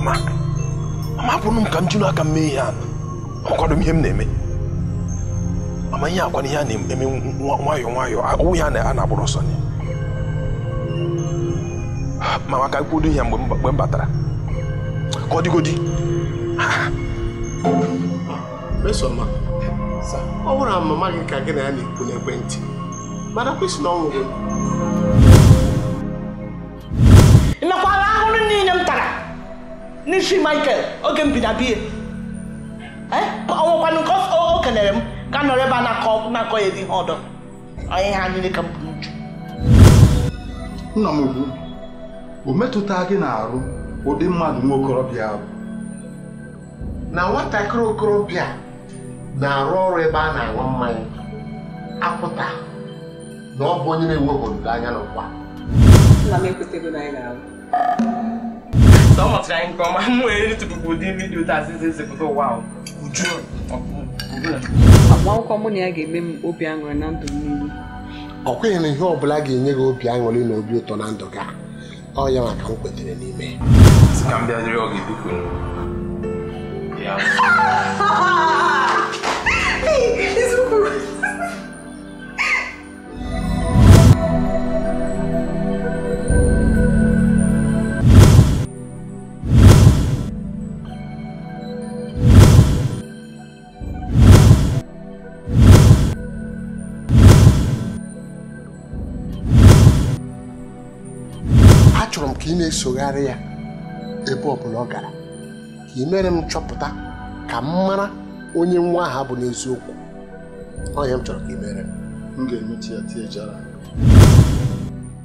mama mama hapụrụ m ka m jiri aka m mee ihe a ọkwado m ihe m na-eme mama ihe akwana ihe a na-eme nwayọ nwayọọ ọwụ ya a na-agbụrụ ọsọ nye mama ka kwudo ihe mgbe m batara ka ọ dịgodi mesoma ọ bụrụ na mama gị ka gị na ya na-ekwu n'ekwentị mana kwesị na ọnwụ gị n'isi michael oge m bi na biya eh? ọnwụkwanụ nke o kelere m ka nọrọ ebe a na-akọ ya ihe ọdọ onye ihe anyị ka m bụ n'uju nna m ukwu o metụta gị na-arụ ụdị mmadụ nwa okorobịa ahụ na nwatakịrị okorobịa na-arụ ọrụ ebe a na-aṅụ mmanya akwụta na ọ bụ onye na-enweghị olileanya n'ụwa nna m ekwetego na anyị ọ mụtara anyị nke ọma m were ritụpụpụ ụdị vidiyo taa sị ezipụta ụwa uju agbamakwụkwọ mụ na ya ga-eme m obi aṅụrị na ndụ niile ọ kweghị na ihe ọ bụla ga-enye gị obi aṅụrị na obi ụtọ na ndụ gị ọ ya maka m kwetere n'ime achọrọ m ka ị na-esogharị ya ebe ọ bụla ọ gara ka ị mere m chọpụta ka m mara onye nwa ahụ bụ n'eziokwu ọhịa m chọrọ ka ị mere m ga-emechi ya tie jara